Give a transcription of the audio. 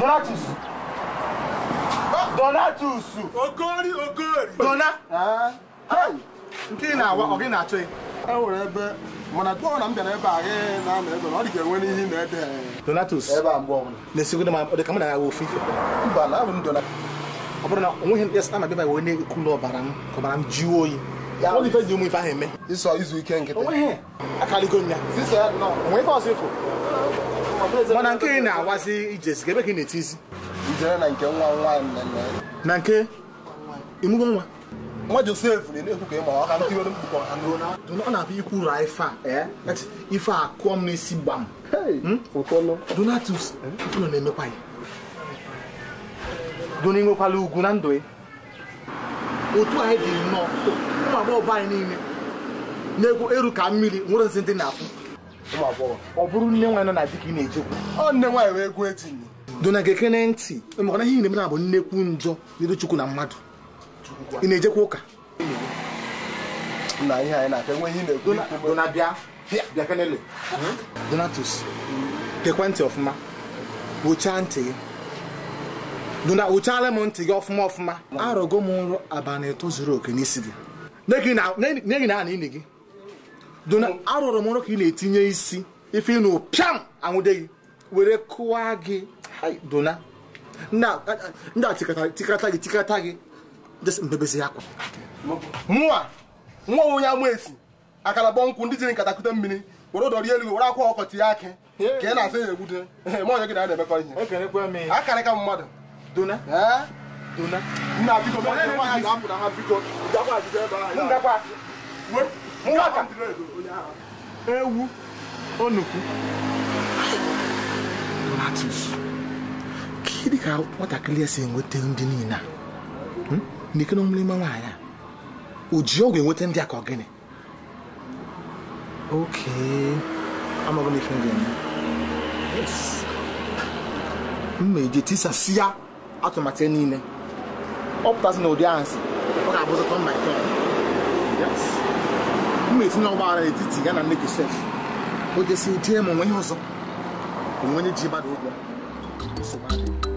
Donatus. Donatus. ogori Dona. Ah. Nke ị na-awa ọ gị na-achọ E nwere ebe mana na m bịara ebe a gị na ebe ọ dị ga-enwe n'ihi na ebe Donatus. Ebe mgbe ọbụla. Na-esigodo ọ dị m na-agha ofu ife. Mba, na abụ m Ọ bụrụ na onweghị m na bịa wee na-ekwu na ọbara m ka ọbara oyi. Ọ ife ahụ izu ike nkịtị. Akaligo m ya. ọsọ ịfụ. mana nke ị na-awazi ijezi ebe ka ị na-etizi eti na nke imugo nwa nwa josef na-ekwu ka ịma ọka ntị were mkpụkọ ha n'ụlọ ọ na-abịa ikwu ra ife a e? ife a kụọ m n'isi gbam hmm? donatus ụlọ na-emekwa ya dona inwekwala ugwu na ndụ ya e. otu anyị dị nnọọ ụmụ agbọghọ anyị niile na-egwu eru ka mmiri nwere nsị ndị na-afụ ọ bụrụ nne nwaanyị nọ na di ka ị na-ejekwu ọ nne nwaanyị wee gụọ etinye dona gekene ntị maka ihe na-eme na bụ nnekwu njọ n'iru chukwu na mmadụ ị na-ejekwa ụka hmm? donatus gekwa ntị ọfụma kpochaa ntị gị dona kpochaala m ntị gị ọfụma ọfụma arọgo m nrọ abalị ịtọ zuru oke n'isi gị na n'ihi na ana ini gị dona arụrụ m ọrụ ka ị na-etinye isi ife ịnụ pịam anwụde gị were kụwa gị dona ndị a tikata gị tikata gị mbebezi akwa mụa nwa onye ama esi akara bọ nkwụ ndị jiri nkatakute mmiri were ụdọ rie elu were akwa ọkọtị ya akị ka ị na-asa ya egbude ma onye gị na na-emekọ ihe akara ka mmadụ dona dona nna biko nna biko ngaka ewu onukwu donatus ka ị ka nwatakịrị esi si enweta ndị niile a hmm? n'ike ọmụrụ ime nwaanyị a o ji ọgwụ enweta ndị a ka ọ gịnị oke amaghị m ndị m ga-eme m ma eje tisasị ya atụmatụ niile ọ pụtasị na ụdị ahụ si ọ ga-abụzịta mma ike ma etinye ọgbaghara etiti ya na nne Josef o jesi jee ma onwe ihe ọzọ onwe onye ji gbada ụgwọ